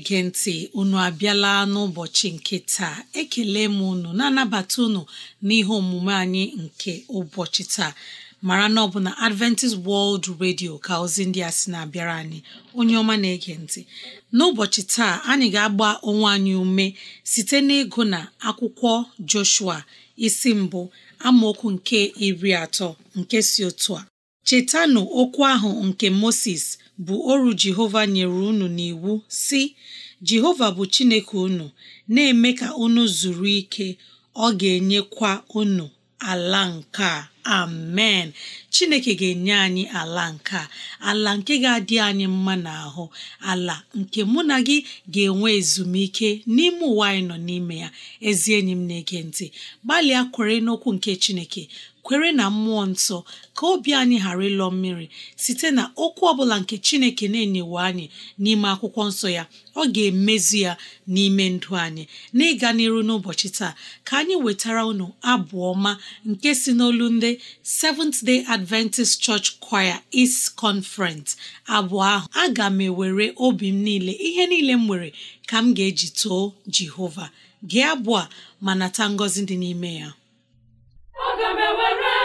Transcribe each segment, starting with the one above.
na-ege ntị unu abịala n'ụbọchị nke taa ekele m unu na-anabata unu n'ihe omume anyị nke ụbọchị taa mara na ọ bụ na Adventist World Radio ka ozi ndị a sị na-abịara anyị onye ọma na-ege ntị n'ụbọchị taa anyị ga-agba onwe anyị ume site n'ịgụ na akwụkwọ Joshua isi mbụ amaokwu nke iri atọ nke si otu a chetanụ okwu ahụ nke Moses bụ oru Jehova nyere unu n'iwu si Jehova bụ Chineke unu na-eme ka unu zuru ike ọ ga-enyekwa unu ala nke a amen Chineke ga-enye anyị ala nke a ala nke ga-adị anyị mma n'ahụ ala nke mụ na gị ga-enwe ezumike n'ime ụwa anyị nọ n'ime ya ezi enyi m na-ege ntị gbalịa kwere n'okwu nke Chineke kwere na mmụọ nsọ ka obi anyị ghara ịlọ mmiri site na okwu ọbụla nke chineke na-enyewe anyị n'ime akwụkwọ nsọ ya ọ ga-emezi ya n'ime ndụ anyị n'ịga n'iru n'ụbọchị taa ka anyị wetara unu abụ ọma nke si n'olu ndị Seventh Day Adventist Church Choir East Conference abụọ ahụ aga m ewere obi m niile ihe niile m nwere ka m ga-eji too Jehova gee abụọ ma nata ngọzi dị n'ime ya aga m ewere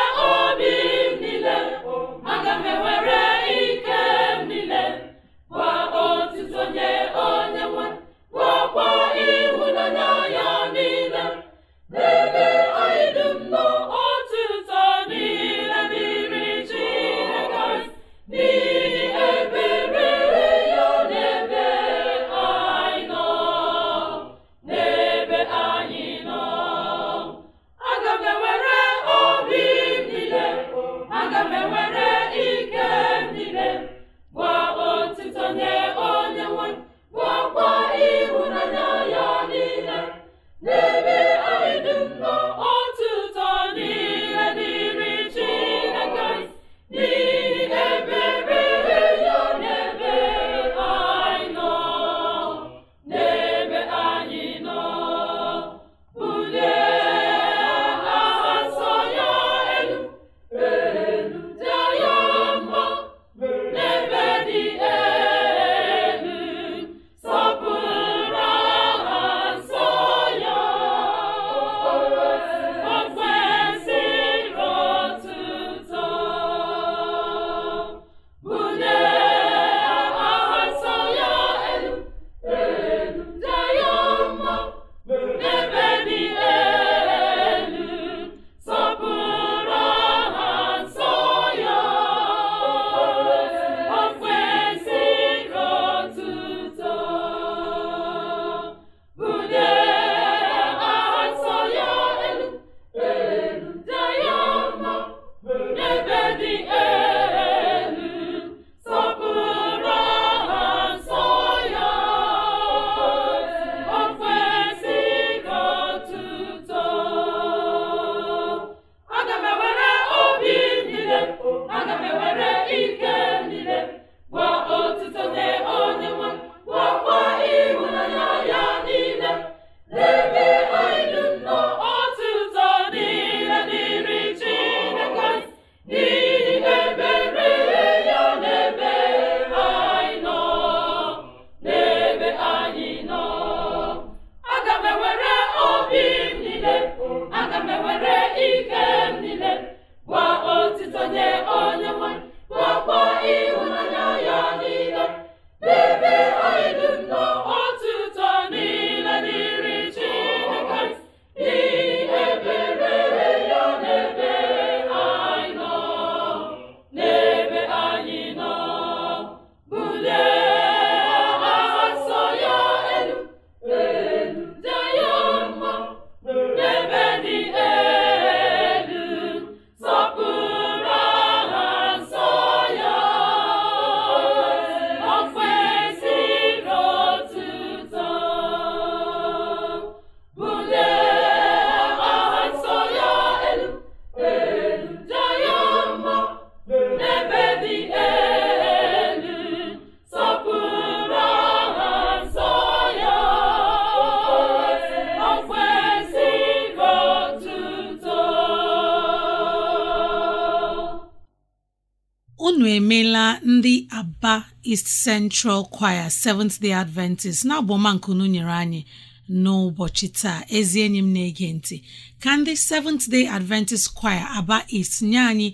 Central Choir Seventh Day Adventist na-abụ nyere anyị n'ụbọchị taa ezi enyi m na-ege ntị ka ndị Seventh Day Adventist Choir Aba East nye anyị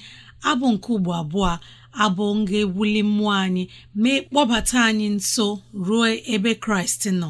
abụ nke ugbo abụọ abụ nga ewuli mmụọ anyị mee kpọbata anyị nso ruo ebe Kraịst nọ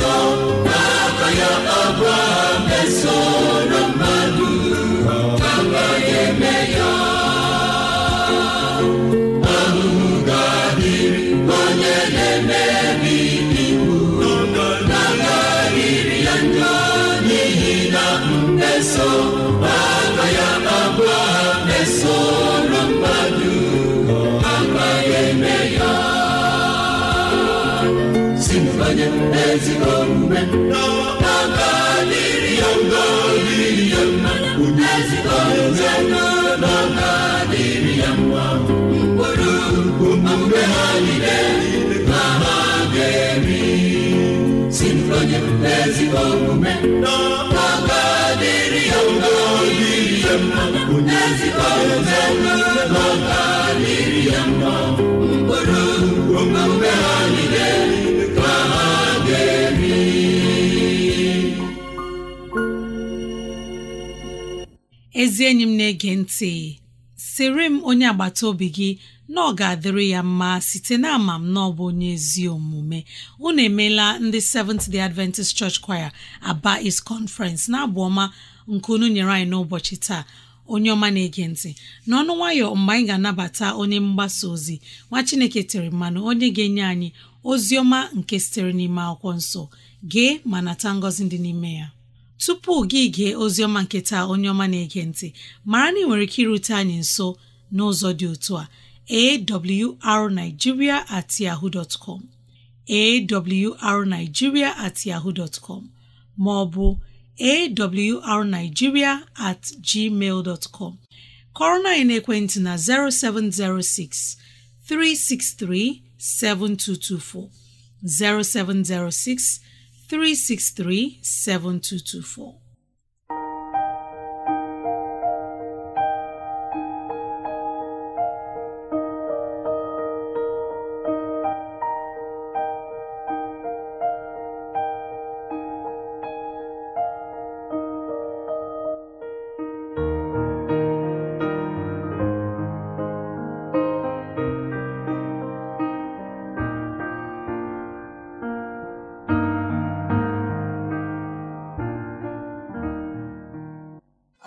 song. n'ezi omume n'ọkpaka dịrị ya mma dịrị ya mma n'ezi omume n'ọkpaka dịrị ya mma mkpụrụ omume ha niile ka ha ga-eri ezi enyi m na-ege ntị sịrị m onye agbata obi gị na ọ ga-adịrị ya mma site na ama m na ọ bụ onye ezi omume unu emeela ndị Seventh Day Adventist Church Choir Aba is Conference na-abụ ọma nke unu nyere anyị n'ụbọchị taa onye ọma na-ege ntị n'ọnụ nwayọ mgbe anyị ga-anabata onye mgbasa ozi nwa Chineke tere mmanụ onye ga-enye anyị ozi ọma nke sitere n'ime akwụkwọ nsọ gee ma nata ngọzi dị n'ime ya tupu gị gee oziọma nke taa onye ọma na-ege ntị mara na ị nwere ike irute anyị nso n'ụzọ dị otu a awrnigeria at yahoo dot com awrnigeria at yahoo dot com ma ọ bụ awrnigeria at gmail dot com kọrọ na ekwentị na 0706 363 7224 0706 363 7224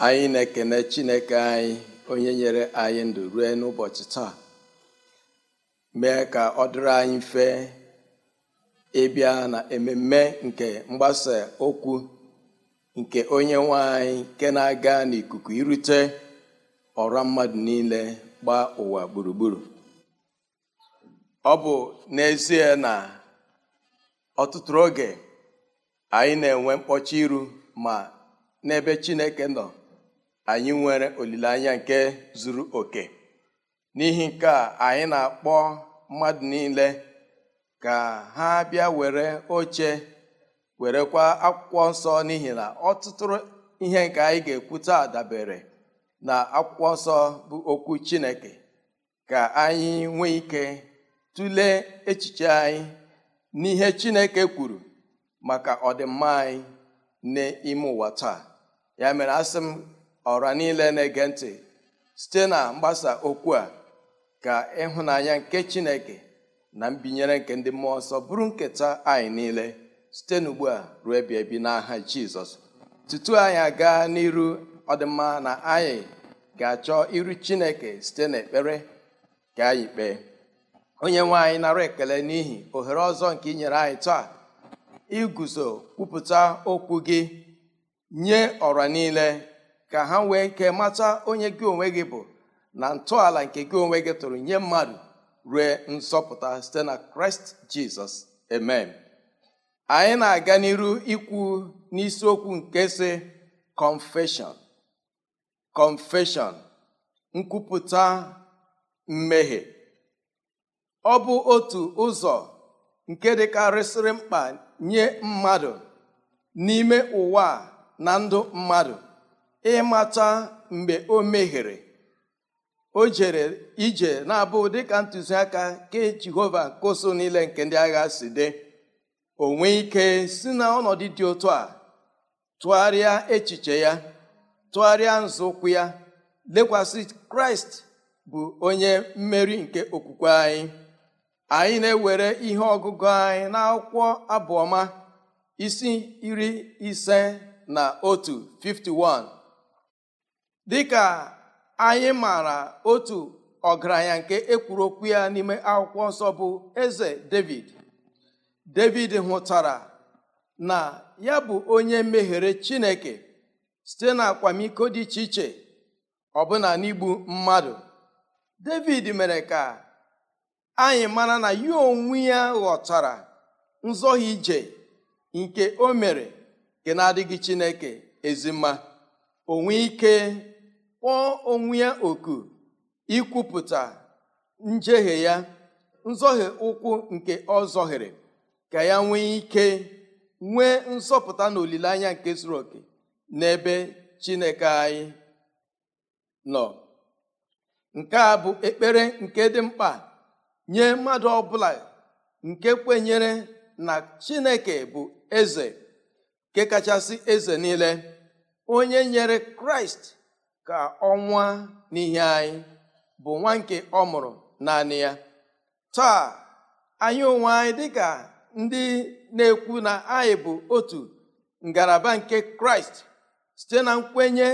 anyị na-ekene chineke anyị onye nyere anyị ndụ rue n'ụbọchị taa mee ka ọ dịrị anyị mfe ịbịa na ememe nke mgbasa okwu nke onye nwe anyị nke na-aga n'ikuku irute ọrụ mmadụ niile gbaa ụwa gburugburu ọ bụ n'ezie na ọtụtụ oge anyị na-enwe mkpọchi iru ma n'ebe Chineke nọ anyị nwere olileanya nke zuru oke n'ihi nke a anyị na-akpọ mmadụ niile ka ha bịa were oche werekwa akwụkwọ nsọ n'ihi na ọtụtụrụ ihe nke anyị ga-ekwu taa dabere na akwụkwọ nsọ bụ okwu Chineke ka anyị nwee ike tụlee echiche anyị n'ihe Chineke kwuru maka ọdịmma anyị n'ime ụwa taa ya mere asị ọra niile na-ege ntị site na mgbasa okwu a ka ịhụnanya nke chineke na mbinyere nke ndị mmụọ ọsọ bụrụ nketa anyị niile site n'ugbu a ruo ebi ebi n'aha jizọs tutu anyị aga n'iru ọdịmma na anyị ga-achọ iru chineke site n'ekpere ka anyị kpee onye nwe anyị nara ekele n'ihi ohere ọzọ nke ị nyere anyị taa iguzo kwupụta okwu gị nye ọra niile ka ha nwee nke mata onye gị onwe gị bụ na ntọala nke gị onwe gị tụrụ nye mmadụ rue nsọpụta, site na kraịst jizọs amen anyị na-aga n'iru ikwu n'isiokwu nke si confession confession nkwupụta mmehie ọ bụ otu ụzọ nke dịkarịsịrị mkpa nye mmadụ n'ime ụwa na ndụ mmadụ ịmata mgbe o mehiere o jere ije na-abụ dịka ntụziaka ke jehova nke niile nke ndị agha si dị onwe ike si na ọnọdụ dị otu a tụgharịa echiche ya tụgharịa nzọụkwụ ya lekwasị kraịst bụ onye mmeri nke okwukwe anyị anyị na-ewere ihe ọgụgụ anyị na akwụkwọ abụọma isi iri ise na otu 51 dịka anyị maara otu ọgaranya nke ekwuru okwu ya n'ime akwụkwọ nsọ bụ eze david david hụtara na ya bụ onye meghere chineke site na akwamiko dị iche iche ọbụna n'igbu mmadụ david mere ka anyị mara na ya onwe ya ghọtara nzọghị ije nke o mere nke na-adịghị chineke ezima onwe ike kpọọ onwe ya oku ikwupụta njehie ya nzọhie ụkwụ nke ọ zọhiri ka ya nwee ike nwee nzọpụta na olileanya nke zuru oke n'ebe chineke anyị nọ nke a bụ ekpere nke dị mkpa nye mmadụ ọbụla nke kwenyere na chineke bụ eze nke kachasị eze niile onye nyere kraịst ka ọnwa n'ihe anyị bụ nwa nke ọ mụrụ naanị ya taa anyị onwe anyị dịka ndị na-ekwu na anyị bụ otu ngalaba nke kraịst site na nkwenye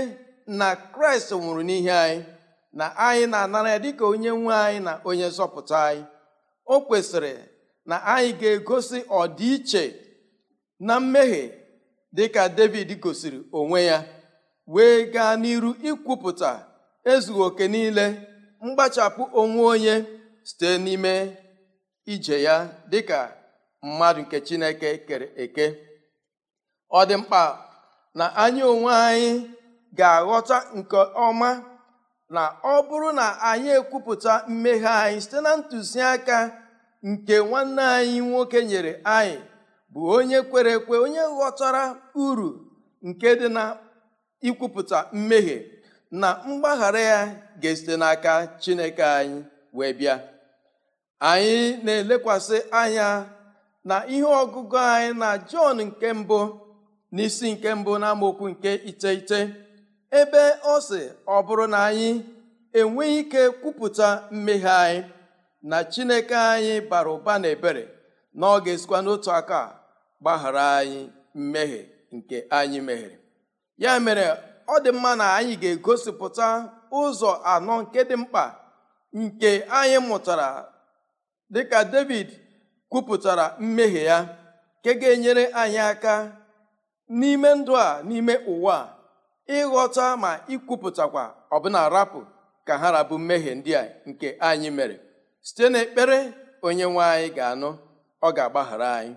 na kraịst nwụrụ n'ihe anyị na anyị na-anara ya dịka onye nwe anyị na onye nzọpụta anyị o kwesịrị na anyị ga-egosi ọdịiche na mmehie dịka david gosiri onwe ya wee gaa n'iru ikwupụta ezughị oke niile mgbachapụ onwe onye site n'ime ije ya dịka mmadụ nke chineke kere eke ọ dị mkpa na anyị onwe anyị ga-aghọta nke ọma na ọ bụrụ na anyị ekwupụta mmeghe anyị site na ntụziaka nke nwanne anyị nwoke nyere anyị bụ onye kwere ekwe onye ghọtara uru nke dị na ikwupụta mmehie na mgbaghara ya ga-esite n'aka Chineke anyị wee bịa anyị na-elekwasị anya na ihe ọgụgụ anyị na Jọn nke mbụ na isi nke mbụ n'amaokwu nke iteghete ebe ọ sị ọ bụrụ na anyị enweghị ike kwupụta mmehie anyị na Chineke anyị bara ụba na ebere na ọ ga-esikwa n'otu aka gbaghara anyị mmehie nke anyị meghere ya mere ọ dị mma na anyị ga-egosipụta ụzọ anọ nke dị mkpa nke anyị mụtara dịka David kwupụtara mmehie ya nke ga-enyere anyị aka n'ime ndụ a n'ime ụwa ịghọta ma ikwupụtakwa ọbụna rapụ ka ha rabu mmehie ndị a nke anyị mere site n'ekpere nwe anyị ga-anụ ọ ga-agbaghara anyị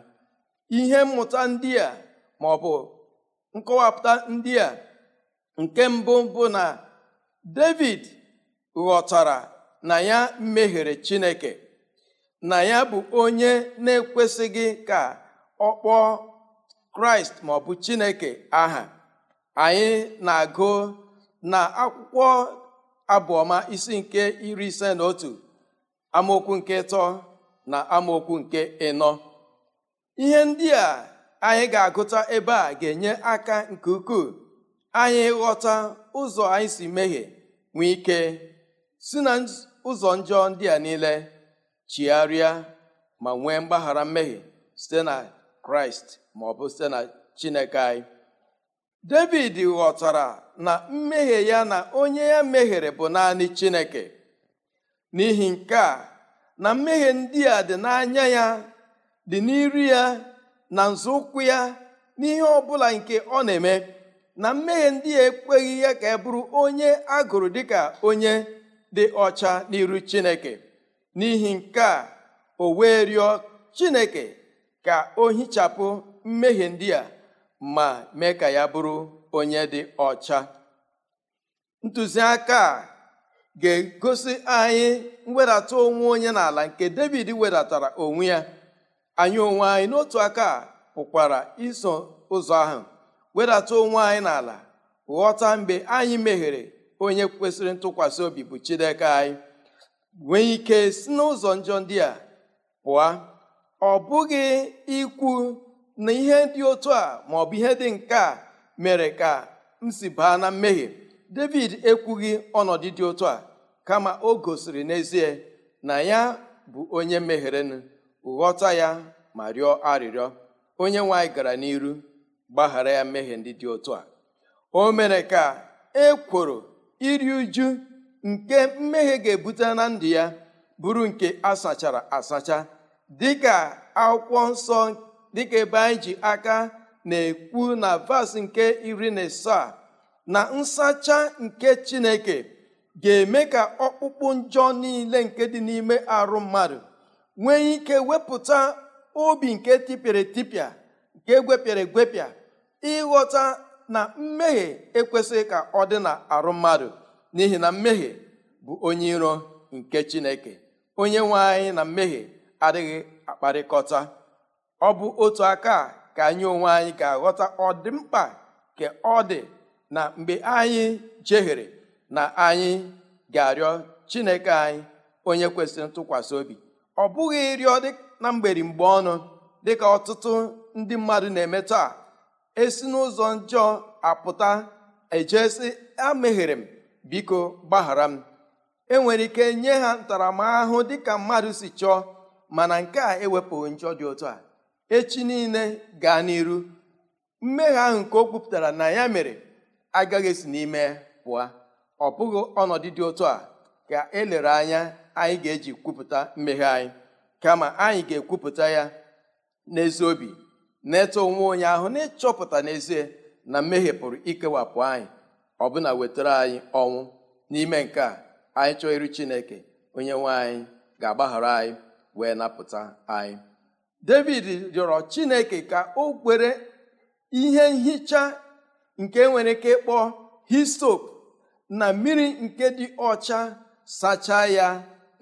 ihe mmụta ndị a ma ọ bụ nkọwapụta ndị a nke mbụ bụ na David ghọtara na ya mehiere Chineke na ya bụ onye na-ekwesịghị ka ọ kpọọ Kraịst maọbụ Chineke aha anyị na-agụ na akwụkwọ abụọma isi nke iri ise na otu amaokwu nke ịtọ na amaokwu nke ịnọ ihe ndị a anyị ga-agụta ebe a ga-enye aka nke ukwuu anyị ghọta ụzọ anyị si mehie nwee ike si na ụzọ njọ ndị a niile chigharịa ma nwee mgbaghara mmehie site na kraịst ma ọ bụ site na chineke anyị david ghọtara na mmehie ya na onye ya mehiere bụ naanị chineke n'ihi nke a na mmehie ndị a dị n'anya ya dị n'iru ya na nzọụkwụ ya n'ihe ọ bụla nke ọ na-eme na mmehie ndị ya ekweghị ya ka e bụrụ onye a gụrụ dịka onye dị ọcha n'iru chineke n'ihi nke a o wee rịọ chineke ka o hichapụ mmehie ndị a ma mee ka ya bụrụ onye dị ọcha ntụziaka a ga-egosi anyị mwedata onwe onye n'ala nke david wedatara onwe ya anyị onwe anyị n'otu aka pụkwara iso ụzọ ahụ wedata onwe anyị n'ala ghọta mgbe anyị meghere onye kwesịrị ntụkwasị obi bụ Chineke anyị nwee ike si n'ụzọ njọ ndị a pụọ ọ bụghị ikwu na ihe dị otu a ma bụ ihe dị nke a mere ka m si baa na mmehie David ekwughị ọnọdụ dị otu a kama o gosiri n'ezie na ya bụ onye mehirenụ ghọta ya ma rịọ arịrịọ onye nwe anyị gara n'iru gbaghara ya mmehie ndị dị otu a o mere ka e kwuru iri uju nke mmehie ga-ebute na ndụ ya bụrụ nke asachara asacha dịka akwụkwọ nsọ dịka ebe anyị ji aka na-ekwu na vas nke iri na asaa na nsacha nke chineke ga-eme ka ọkpụkpụ njọ niile nke dị n'ime arụ mmadụ nwee ike wepụta obi nke tipịara etipịa nke gwepịara egwepịa ịghọta na mmehie ekwesịghị ka ọ dị na arụ mmadụ n'ihi na mmehie bụ onye iro nke chineke onye nwe anyị na mmehie adịghị akparịkọta ọ bụ otu aka ka anyị onwe anyị ga-aghọta ọdịmkpa ka ọ dị na mgbe anyị jehiere na anyị ga-arịọ chineke anyị onye kwesịrị ntụkwasị obi ọ bụghị ịrịọ na mgberi mgbe ọnụ dịka ọtụtụ ndị mmadụ na-eme taa esi n'ụzọ njọ apụta ejesi ameghere m biko gbaghara m enwere ike nye ha ntaramahụhụ dịka mmadụ si chọọ mana nke a ewepụghị njọ dị otu a echi niile gaa n'iru mmehie ahụ nke o kwupụtara na ya mere agaghị esi n'ime pụọ ọ bụghị ọnọdụ dị otu a ka elere anya anyị ga-eji kwupụta mmehie anyị kama anyị ga-ekwupụta ya n'ezi obi na-eto onwe onye ahụ na-ịchọpụta n'ezie na mmehie pụrụ ikewapụ anyị ọbụna wetara anyị ọnwụ n'ime nke a anyị chọọ iru chineke onye nwe anyị ga-agbaghara anyị wee napụta anyị david rịọrọ chineke ka o kwere ihe nhicha nke nwere ike ịkpọ histop na mmiri nke dị ọcha sachaa ya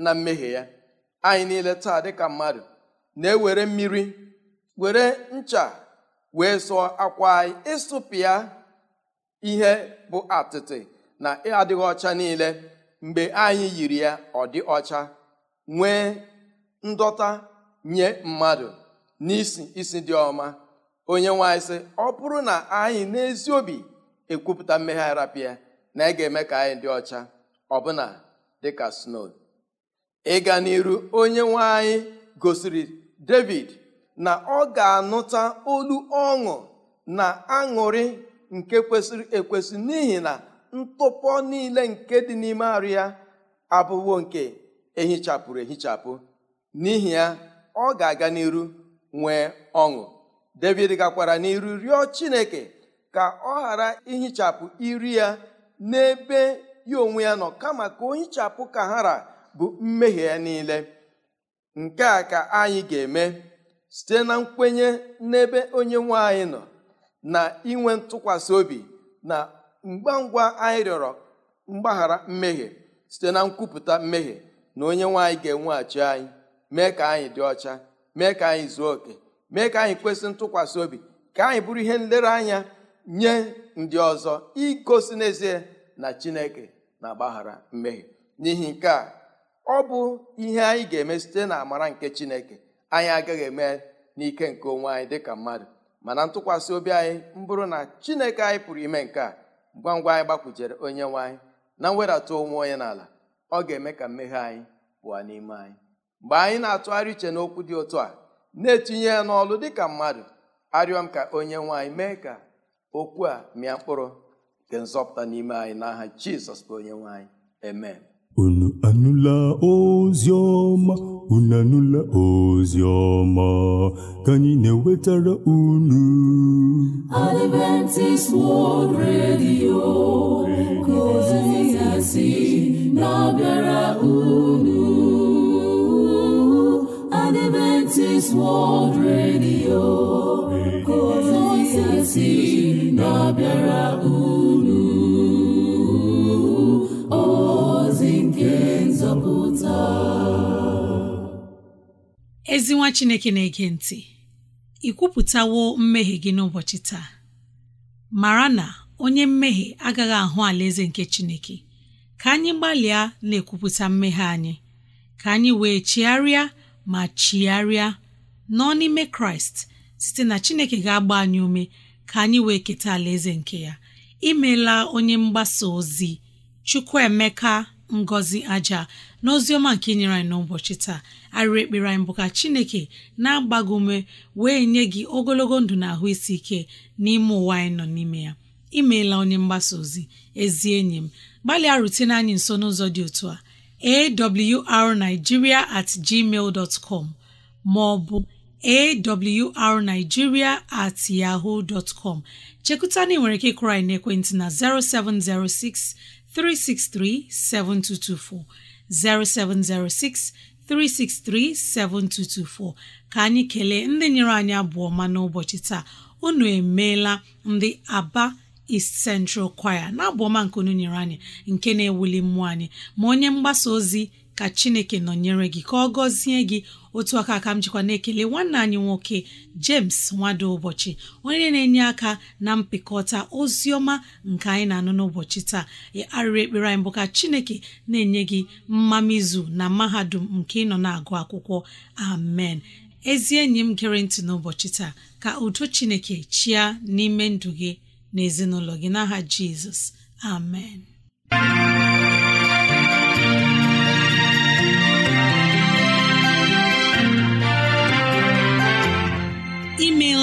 na mmehie ya anyị niile taa dịka mmadụ na-ewere mmiri were ncha wee sụọ akwa anyị ịsụpịa ihe bụ atịtị na adịghị ọcha niile mgbe anyị yiri ya ọ dị ọcha nwee ndọta nye mmadụ n'isi isi dị ọma onye nwanyị sị ọ bụrụ na anyị n'ezi obi ekwupụta mmegharapịa na ị ga-eme ka anyị dị ọcha ọbụna dịka snow ịga n'iru onye nwe anyị gosiri david na ọ ga-anụta olu ọṅụ na aṅụrị nke kwesịrị ekwesị n'ihi na ntụpọ niile nke dị n'ime arụ ya abụwo nke ehichapụrụ ehichapụ n'ihi ya ọ ga-aga n'iru nwee ọṅụ david gakwara n'iru rịọ chineke ka ọ ghara ihichapụ iri ya n'ebe ya onwe ya nọ kama ka o hichapụ kahara bụ mmehie ya niile nke a ka anyị ga-eme site na nkwenye n'ebe onye nwe anyị nọ na inwe ntụkwasị obi na ngwa ngwa anyị rịọrọ mgbaghara mmehie site na nkwupụta mmehie na onye nwaanyị ga-enweghachi anyị mee ka anyị dị ọcha mee ka anyị zuo oke mee ka anyị kwesị ntụkwasị obi ka anyị bụrụ ihe nlereanya nye ndị ọzọ igosi n'ezie na chineke na-agbaghara mmehie n'ihi nke a ọ bụ ihe anyị ga-eme site na amara nke chineke anyị agaghị eme n'ike nke onwe anyị dịka mmadụ mana ntụkwasị obi anyị mbụrụ na chineke anyị pụrụ ime nke a ngwa ngwa anyị gbakwujere onye nwe anyị na mwedata onwe onye n'ala ọ ga-eme ka mmehie anyị pụọ n'ime anyị mgbe anyị na-atụgharị uche n'okwu dị otu a na-etinye ya n'ọlụ dịka mmadụ arịọ m ka onye nwe anyị mee ka okwu a mịa mkpụrụ nke nzọpụta n'ime anyị n'aha aha jizọs bụ onye nwe anyị unu anụla ozi ọma unu anụla ozi ọma ka na-ewetara unu Adventist World Radio ka ozi ya si na-abịara unu Adventist World Radio ka ozi na-abịara unu ezi chineke na-ege ntị ị kwupụtawo mmehie gị n'ụbọchị taa mara na onye mmehie agaghị ahụ alaeze nke chineke ka anyị gbalịa na-ekwupụta mmehie anyị ka anyị wee chigharịa ma chigharịa nọ n'ime kraịst site na chineke ga-agba anyị ume ka anyị wee keta alaeze nke ya imeela onye mgbasa ozi chukwuemeka ngozi aja n'oziọma nke inyere anyị n'ụbọchị taa arịrị ekpere anyị bụ ka chineke na-agba ume wee nye gị ogologo ndụ na ahụ isi ike n'ime ụwa anyị nọ n'ime ya imeela onye mgbasa ozi ezi enyi m gbalịa rutene anyị nso n'ụzọ dị otu a awrnigeria at gmail dot com ma ọ bụ awrnigeria at yahoo dot com chekụta na ị nwere ike ịkụrọ anyị n'ekwentị na 0706 363 7224 0706 363 7224 ka anyị kelee ndị nyere anyị abụọ ma n'ụbọchị taa unu emeela ndị Aba East Central Choir na abụọma nke unu nyere anyị nke na-ewuli mmụọ anyị ma onye mgbasa ozi ka chineke nọnyere gị ka ọ gọzie gị otu aka aka m jikwa na-ekele nwanne anyị nwoke James nwado ụbọchị onye na-enye aka na mpịkọta ozi ọma nke anyị na-anụ n'ụbọchị taa arịrị ekpere anyị bụ ka chineke na-enye gị mmamizu na mahadum nke ịnọ na-agụ akwụkwọ amen ezi enyi m gere ntị n'ụbọchị taa ka udo chineke chia n'ime ndụ gị na gị n'aha Jizọs amen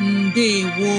ndewo